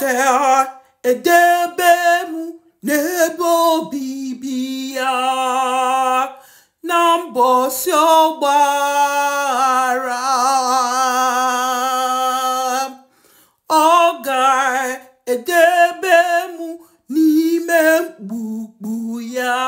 ka edebe m n'ebe obibi ya na mbọsị ọgbara, ọ ga-edebe m n'ime mkpukpu ya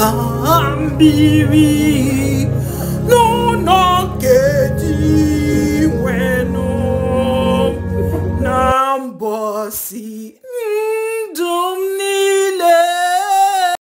cambi, no